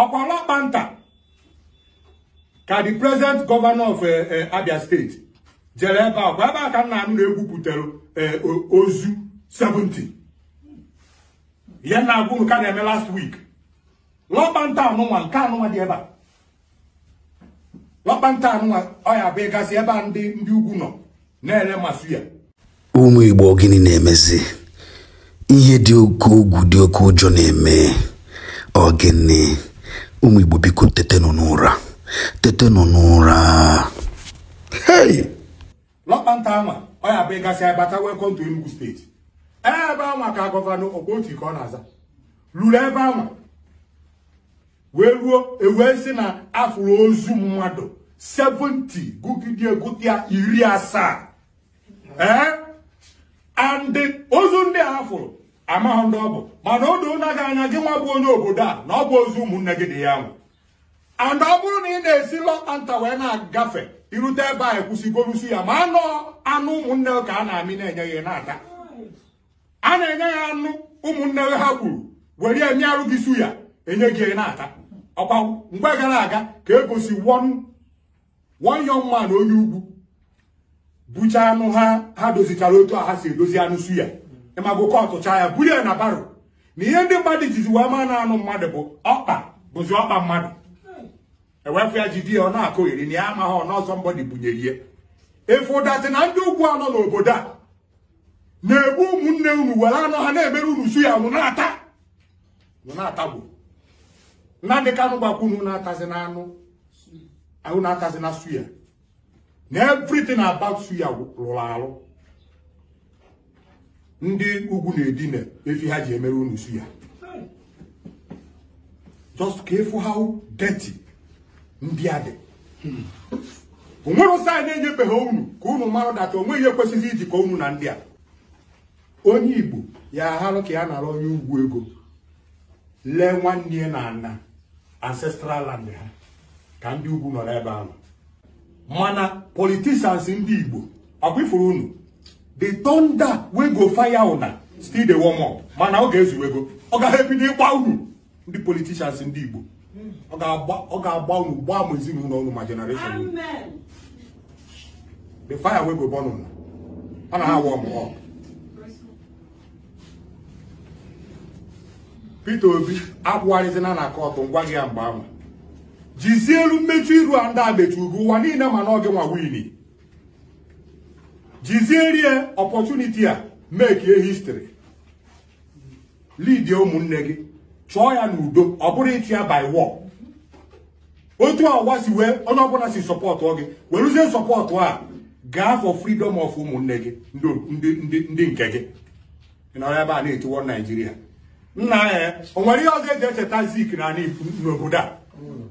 ọkwa ọlọkpanta ka the present governor of eh, eh, Abia steeti jere ebe a ebe a ka nna m na-egwupụtara eh, ozu 70 ya na-agwụ m ka na-eme last week lọkpanta anụnwa nke anụnwa dị ebe a lọkpanta anụnwa ọ ya bụ ịgasị ebe a ndị ndị ugwu nọ na ere masị ya ụmụ Igbo gịnị na-emezi ihe dị oke ugwu dị oke ụjọ na-eme ọ gịnị ụmụ Igbo biko tetenụ n'ụra tetenụ n'ụra lọkpanta ọya bụ gasị abata welcome to Enugu steeti ebe ama ka gọvanọ Okpoti ka ọ na-aza lụrụ ebe ama wee ruo ewee si na afụrụ ozu mmadụ 70 gụgide egụta iri asaa ee ozu ndị a fụrụ amaghị ndị ọ bụ mana o doo na aga anya gị nwa bụ onye obodo a na ọ bụ ozu ụmụnne gị dị ya nwụ and ọ bụrụ na ị na-esi lọtanta wee na-agafe irute ebe a ekwusịgorusi ya ma anụ anụ ụmụnne ka a na-amị na-enye ya na-ata a na-enye ya anụ ụmụnne ha gburu were ya arụ gị su ya enye gị na-ata ọkwa mgbe gara aga ka egosi one young na onye ugwu bụcha anụ ha ha dozichara otu a ha si edozi anụ su ya ịma gụkọ ọtụcha ya buru ya na baro na ihe ndị mmadụ jizi wee ma na-anụ mmadụ bụ ọkpa bụzi ọkpa mmadụ ewefu ya di ya ọ na-akụ iri na ya amaghị ọ n'ọzọ bunyere ihe efu ụdatị na ndị ugwu anọ n'obodo a na-egbu ụmụnne unu were anọ ha na-emere unu su ya na-ata na-atagbu nnamdị kanụ gbakwunu na-atazi na ahụ na-atazi na suya na aba about suya rụrụ arụ ndị ugwu na-edina efi ha ji emere unu si ya just ka efu how deti ndị a dị onwere na anyị enyebeghị unu ka unu mara data onwe ihe kwesịrị ijikọ unu na ndị a onye igbo ya aharụ ka ya nara onye ugwu ego lee nwanne ya na ana ancestral land ha ka ndị ugwu nọrọ ebe ahụ mana politicians ndị igbo ọ ifuru unu the thunder wey go fire still the warm up mana ọ ga-ezuwego ọ ga-ebido ịgba unu ndị politishans ndị Igbo ọ ga-agba unu gbaa m ezinụlọ unu ma generation the fire wey go burn ọ na warm up Peter Obi akwụgharịzina na kọtụ ngwa gị ya mgbe ahụ jizie elu mmechu iru a ndị a mechuru ụwa niile mana ọ gị nwa wini jiziere ọpọchuniti a mekie histri lidie ụmụnne gị chọọ ya n'udo ọ bụrụ ịchụ ya by war otu ọwa si wee onye ọbụla si sọpọtụ gị werụzie sọpọtụ a gaa for freedom of ụmụnne gị ndị nke gị nọrọ ebe a na-etiwo naijiria nna ya o nwere ihe ọzọ eji echeta zik n'obodo a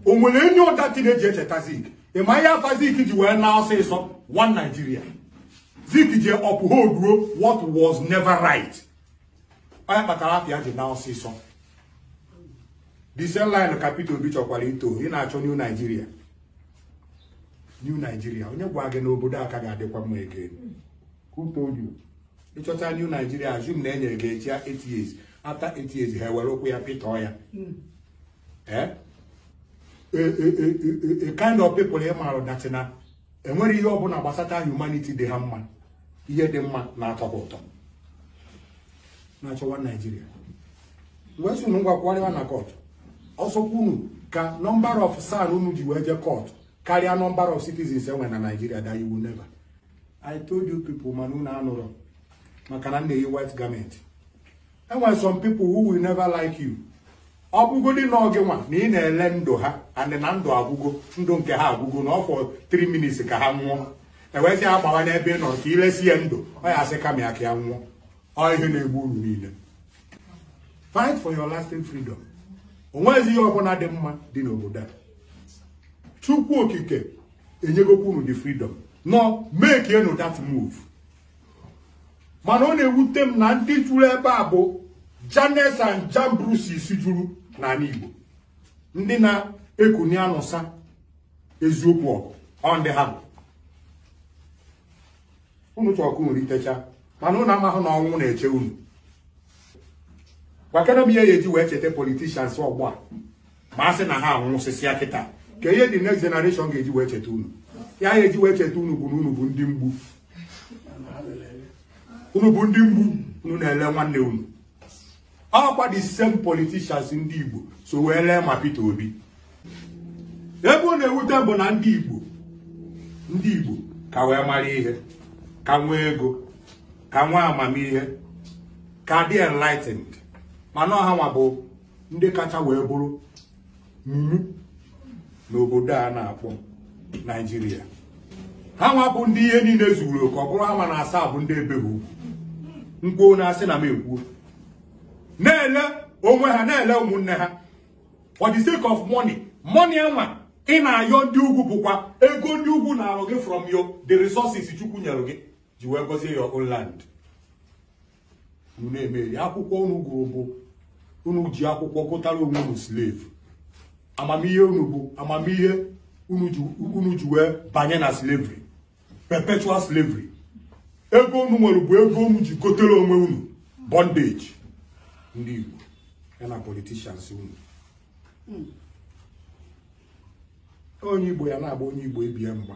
o nwere enyi ụda tin eji echeta zik ị ma ihe afa zik ji wee na ọsịsọ one naijiria Zik ji uphold ruo what was never right. Onye kpatara afia ji na ọsịsọ. The same line ka Peter Obi chọkwara ito ị na-achọ New Nigeria. New Nigeria onye gwa gị n'obodo aka ga-adịkwa mma ege. Who told you? Ịchọta New Nigeria assume na enyere gị echi 8 years after 8 years ha ewere ụkwụ ya pịtọọ ya. Eh? A kind of people ị maara datị enwere ihe ọbụla gbasata humanity dị ha mma ihe dị mma na-atọ ụtọ na-achọwa naijiria wee sunu ngwakwụgharịwa na kọt ọsọkwunu ka nọmbara of san unu ji wee jee kọt karịa nọmbara of citizens enwe na naijiria da iwu neva i told you people mana unu anụrụ maka na m na-eyi white garment enwe some people who will never like you ọ dị na gị nwa na ị na-ele ndụ ha anị na ndụ agwụgo ndụ nke ha agwụgo na ọfọ 3 minutes ka ha nwụọ ewezi ya gbawa n'ebe ị nọ ka ilesi ya ndụ ọ ya asị kama ya ka ya nwụọ ọ ihe na-egbu uru niile fight for your lasting freedom o ihe ọbụla dị mma dị n'obodo a chukwu okike enyegokwa unu the freedom nọ make enu that move mana ọ na-ewute m na ndị juru ebe a bụ Janes and Jambres juru n'ala Igbo ndị na-ekuni anụsa eziokwu ọgụ ọ ndị ha bụ unu chọkụ nwere itecha mana unu amahụ na ọnwụ na-eche unu gwakere m ihe ya eji wee cheta politishans ọgbọ a ma a sị na ha anwụsịsịa kịta ka ihe dị next generation ga-eji wee cheta unu ya ya eji wee cheta unu bụ na unu bụ ndị mgbu unu bụ ndị mgbu unu na-ele nwanne unu ọkwa the same politicians ndị Igbo so wee lee ma pete Obi ebe ọ na-ewute bụ na ndị Igbo ndị Igbo ka wee mara ihe ka nwee ego ka nwee amamihe ka dị enlightened mana ọha nwa bụ ndị kacha wee bụrụ mumu n'obodo a na-akpọ Naijiria ha nwa ndị ihe niile zuru oke ọ bụrụ ha ma na asaa bụ ndị ebe ha ukwu na-asị na m ekwuo na-ele onwe ha na-ele ụmụnne ha for the sake of money money enwa ị na-ayọ ndị ugwu bụkwa ego ndị ugwu na-alụ gị from your the resources chukwu nyere gị ji wee gozie your own land na-emeri akwụkwọ unu gụrụ bụ unu ji akwụkwọ gụtara onwe unu slave amamihe unu bụ amamihe unu ji wee banye na slavery perpetual slavery ego unu nwere bụ ego unu ji gotere onwe unu bondage ndị Igbo na politishans unu hmm. onye Igbo ya na-agba onye Igbo ebie mgba